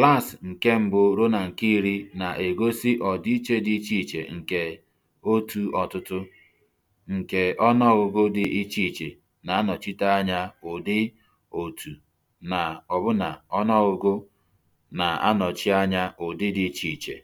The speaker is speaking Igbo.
Klaasị nke mbụ ruo na nke iri na-egosi ọdịiche dị iche iche nke otu ọtụtụ, nke ọnụọgụgụ dị iche iche na-anọchite anya ụdị, otu na ọbụna ọnụọgụgụ na-anọchi anya ụdị dị iche iche.